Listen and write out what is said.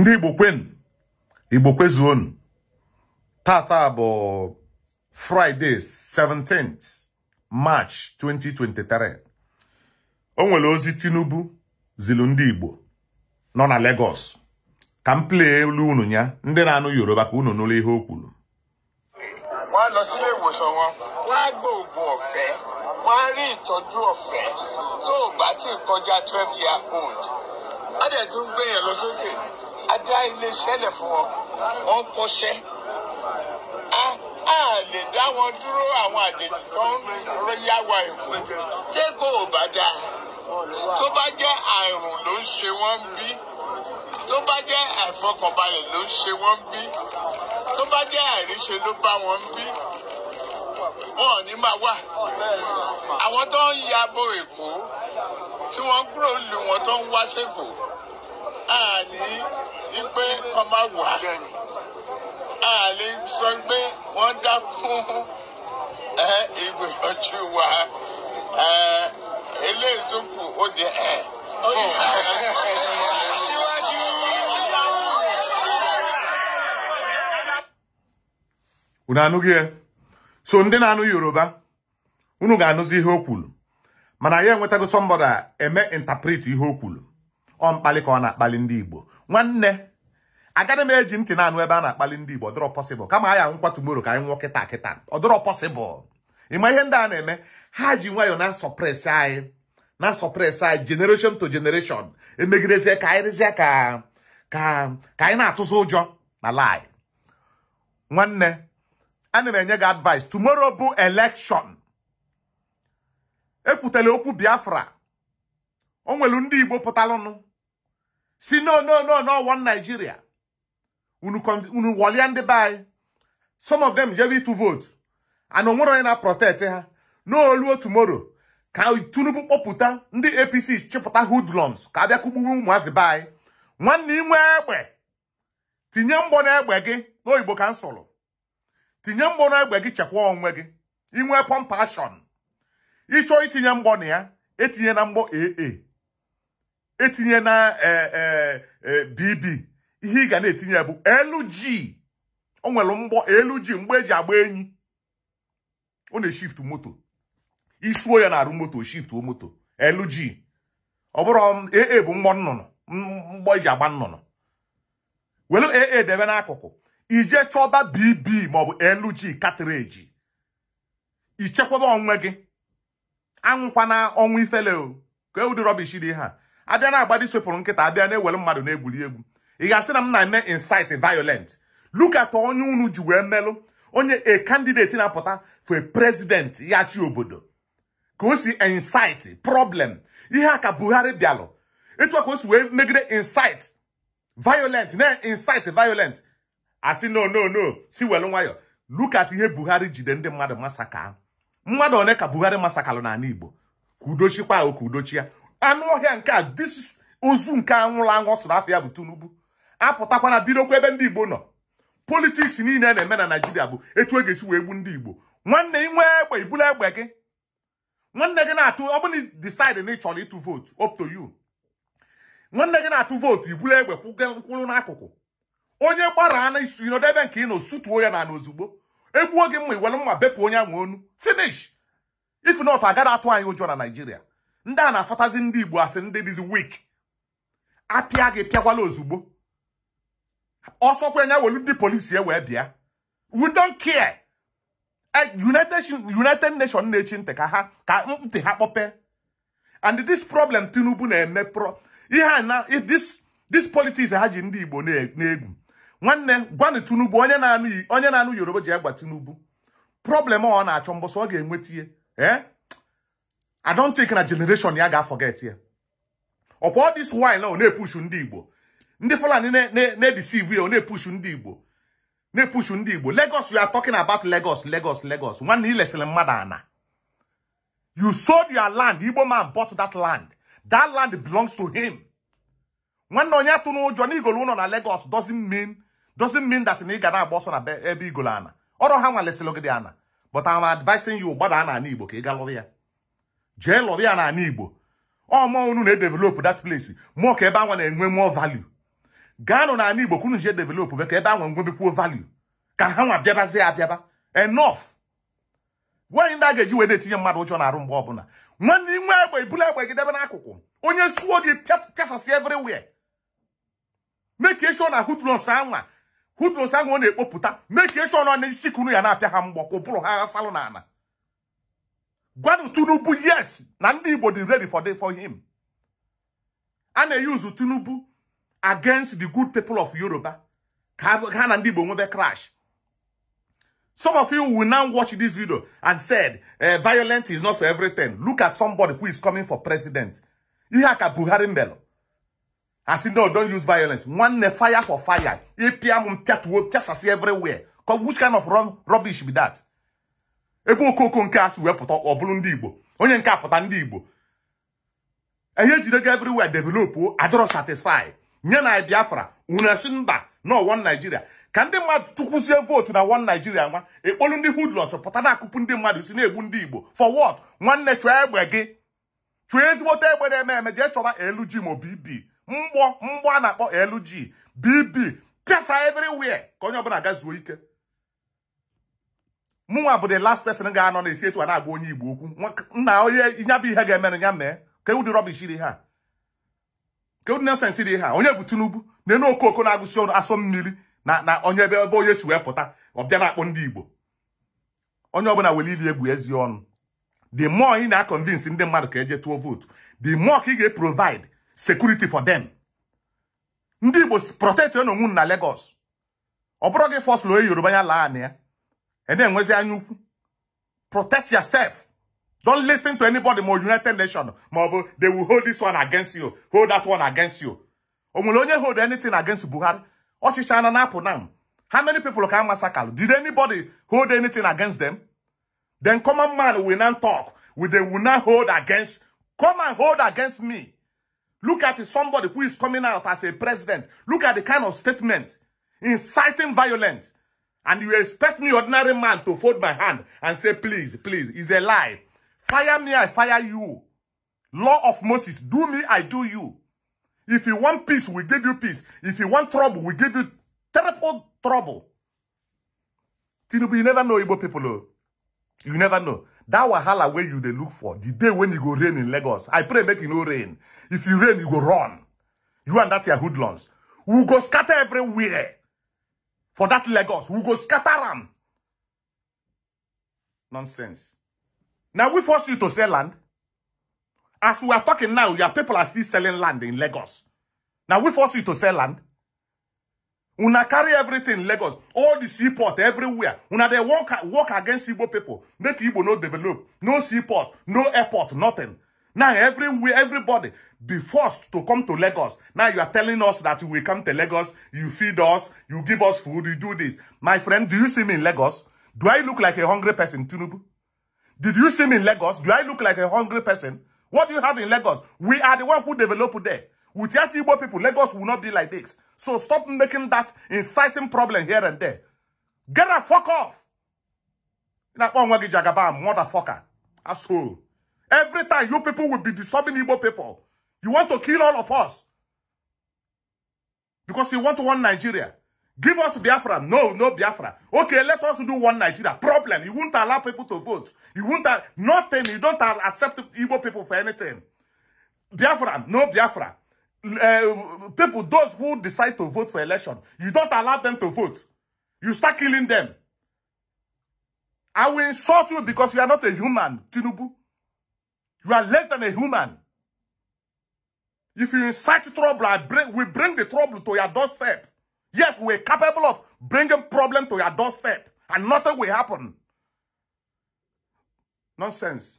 ndị igbo kwenu igbo kwezuonu tata bụ fraịde 17th march 2023 o nwere ozi tinubu zilu ndị igbo nọ na Lagos ka m plee elu unu ya ndị na-anụ yoruba ka unu nụrụ ihe o kwuru wọ́n lọ sílé ìwòsàn wọn wọ́n á gbọ́ oògùn ọ̀fẹ́ wọ́n á rí old dẹ̀ tún gbé yẹn lọ sókè a dá iléeṣẹ́ lẹ̀ fún wọn wọ́n ń kọ́ṣẹ́ a a lè dá wọn dúró àwọn àjèjì tó ń yá wa èkó ṣé kò bá dáa tó bá jẹ́ àrùn ló ń ṣe wọ́n bí tó bá jẹ́ àìfọkànbalẹ̀ ló ń ṣe wọ́n bí tó bá jẹ́ àìríṣe ló bá wọn bí wọn ò ní máa wà àwọn tó ń ya bo èkó tí wọ́n kúrò lù wọ́n tó ń wá sẹ́kọ̀ọ́ àní wípé kọ́ má wà á lè sọ pé wọ́n dá fún ìgbìyànjú wa eléyìí tó kù ó di ẹ̀. unu anụghị ya e? so ndị na-anụ yoruba unu ga-anụzi ihe o kwuru mana ya enwetago sọmbọda eme interpret ihe o kwuru ọ mkpali ka ọ na-akpali ndị igbo nwanne agaghị m eji ntị na-anụ ebe a na-akpali ndị Igbo ọdọrọ pọsịbụl kama aya nkwa tumoro ka anyị nwụọ kịta kịta ọdọrọ pọsịbụl ịma ihe ndị a na-eme ha ji nwayọọ na-asọpresị anyị na-asọpresị anyị jenereshọn to jenereshọn emegidezie ka anyị rịzie ka ka ka anyị na-atụzi ụjọ na lai nwanne ana m enye gị advice tomorrow bụ elekshọn ekwutela okwu Biafra o nwelu ndị Igbo pụtalụnụ si no no no no one Nigeria unu walia ndị be anyị some of them jebe ịtụ vote and onwere na-protect ha n'oluo tomorrow ka Tinubu kpọpụta ndị APC chịpụta hoodlums ka abịa kugburu ụmụazị be anyị nwanne inwe egbe tinye mgbọ egbe gị n'oyibo igbo m tinye mgbọ egbe gị chekwa onwe gị inwe pompashon ịchọọ itinye mgbọ na ya etinye na mgbọ aa etinye na bb e, e, e, ihe ị ga na-etinye bụ LG o nwere mgbọ LG mgbe eji agba enyi ọ na-eshift moto isuo ya na-arụ moto o moto LG ọ bụrụ AA um, bụ mgbọ nnụnụ mgbọ eji agba nnụnụ welu AA debe n'akụkụ ije chọba BB maọbụ LG katreji ichekwaba onwe gị anwụkwana ọnwụ ifele ka ụdị rọbish dị ha abịa na-agbadi swepụrụ nkịta abịa na-ewere mmadụ na-egwuri egwu ị ga-asị na m na-eme incite violent lukata onye unu ji wee melụ onye a candidate na-apụta for prezident ya chi obodo ka o si incite problem ihe a ka Buhari bịalụ etu a ka o si wee megide insit violent na insit violent asị no no no si welu nwayọ lukata ihe Buhari jide ndị mmadụ masaka mmadụ one ka Buhari masakalụ n'ala Igbo ka udochikwa ahụ ka udochi anụ ọhịa nke a dis ozu nke anwụrụ anwụ ọsụrụ afọ ya bụ Tinubu apụtakwa na bidokwa ebe ndị Igbo nọ politiks niile na-eme na Naijiria bụ etu e ga-esi wee gbu ndị Igbo nwanne nwee egbe ibulu egbe gị nwanne gị na-atụ ọ bụrụ decide na ị chọrọ ịtụ vootu up to you nwanne gị na-atụ vootu ibulu egbe kwụrụ n'akụkụ onye gbara na isu ịnọdụ ebe nke ị nọ sutuo ya na ozugbo egbuo gị mma iwere mma bepụ onye ahụ onu finish if not agada atụ anyị ụjọ na naijiria ndị a na-afọtazi ndị Igbo asị ndị dịzi wik apịa gị pịakwala ozugbo ọsọkwenye kwenya welu ndị polisi wee bịa we don't care e, United Nations na-echi ntị ka ha ka ntị ha kpọpe and this problem Tinubu na-eme pro ihe na this politics ha ji ndị Igbo na-egwu nwanne gwanụ Tinubu onye na-anụ Yoruba ji egwa Tinubu problem ọ na-achọ mbọsọ ọ ga-enweta ihe eh? I don't think na generation ya ga-forget ya ọkwa all this while na ọ na-epushu ndị Igbo ndị Fulani na-edeceive ya ọ na-epushu ndị Igbo na epusu ndị Igbo Lagos we are talking about Lagos Lagos Lagos nwanne ilesịrị mmadụ ana you sold your land Igbo man bought that land that land belongs to him nwanne onye atụ n'ụjọ na igolo ụlọ na Lagos doesn't mean doesn't mean that na ị ga na-agba na ebe igolo ana ọrụ ha nwalesịrị gị ana but I'm advising you gbada na ana Igbo ka ị galụrụ ya jee lọrọ ya na ala igbo ọmọ unu na-edevelopụ dat place mụọ ka ebe anwa na-enwe mụọ value gaanụ na ala igbo kwunu jee developụ be ka ebe anwa nwebekwuo value ka ha nwa bịabazie abịaba enough nwanyị ndị a ga-eji wee na-etinye mmadụ ụjọ na arụ mgbe ọbụla nwanne inwe egbe ibula egbe gị debe n'akụkụ onye suo gị kasasị everywhere meke ọ na hudros anwa hudros anwa ọ na-ekpopụta meke shon ọ na isi kunu ya na-apịa ha mgbọ kwụbụrụ ha ghasalụ n'ala Gwanu Tunubu, yes. Nandi ready for, the, for him. And they use Tunubu against the good people of Yoruba. Nandi Ibodi crash. Some of you will now watch this video and said, uh, eh, violent is not for everything. Look at somebody who is coming for president. Ihaka Buhari Mbelo. I said, no, don't use violence. One fire for fire. EPM, just as everywhere. Which kind of rubbish be that? ebe okoko nke asị wee pụta ọ bụrụ ndị igbo onye nke apụta ndị igbo ihe ejidego everywhere develop adọrọ satisfy nye na biafra unu esi mba na ọwọ naijiria ka ndị mmadụ tụkwuzie vootu na wọn naijiria nwa ekpolu ndị hoodlums pụta na-akụpụ ndị mmadụ si na-egbu ndị igbo fọ wọt nwanne chụọ egbe gị chụọ ezigbote egbe na-eme eme jee chọba LG ma BB e mgbọ mgbọ a na-akpọ LG BB pịasa everywhere ka onye ọbụla gazuo ike mụnwa bụ the last person ga-anọ na-esi etu a na-agwa onye igbo okwu nna onye ya bụ ihe ga-emere ya mee ka ewu dị rọbish dị ha ka ewu dị dị ha onye bụ tinubu na-enu okoko na-agụsi ọnụ asọ mmiri na na onye ebe ebe onye si wee pụta ọbịa na-akpọ ndị igbo onye ọbụla were ili egwu ezi ọnụ the more ị na-akọnvinsi ndị mmadụ ka eje tụọ vootu the more ka ị ga-eprovide sekuriti for them ndị igbo protect onwe na Lagos ọ bụrụ gị fọsụlụ onye yoruba ya laa ya And then when you protect yourself. Don't listen to anybody more United Nations. They will hold this one against you. Hold that one against you. Omulonye hold anything against Buhari. Ochichana Napo now. How many people can massacre? Did anybody hold anything against them? Then common man will not talk. Will they will not hold against. Come and hold against me. Look at somebody who is coming out as a president. Look at the kind of statement. Inciting violence. And you expect me, ordinary man, to fold my hand and say, please, please. It's a lie. Fire me, I fire you. Law of Moses, do me, I do you. If you want peace, we give you peace. If you want trouble, we give you terrible trouble. Tinubu, you never know Igbo people. Oh. You never know. That wahala where you they look for, the day when you go rain in Lagos, I pray make you no rain. If you rain, you go run. You and that your hoodlums. We go scatter everywhere for that Lagos. We go scatter them. Nonsense. Now we force you to sell land. As we are talking now, your people are still selling land in Lagos. Now we force you to sell land. Una carry everything in Lagos, all the seaport everywhere. Una they work, walk against Igbo people. Make Igbo no develop. No seaport, no airport, nothing. Now everywhere, everybody, be forced to come to Lagos. Now you are telling us that you will come to Lagos, you feed us, you give us food, you do this. My friend, do you see me in Lagos? Do I look like a hungry person, Tinubu? Did you see me in Lagos? Do I look like a hungry person? What do you have in Lagos? We are the one who developed there. With Yatibo people, Lagos will not be like this. So stop making that inciting problem here and there. Get a fuck off. Motherfucker. Asshole. Every time you people will be disturbing Igbo people. You want to kill all of us. Because you want one Nigeria. Give us Biafra. No, no Biafra. Okay, let us do one Nigeria. Problem. You won't allow people to vote. You won't nothing. You don't accept evil people for anything. Biafra. No Biafra. Uh, people, those who decide to vote for election, you don't allow them to vote. You start killing them. I will insult you because you are not a human, Tinubu. You are less than a human. If you incite trouble, I bring, we bring the trouble to your doorstep. Yes, we're capable of bringing problem to your doorstep. And nothing will happen. Nonsense.